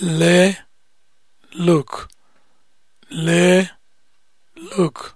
le look le look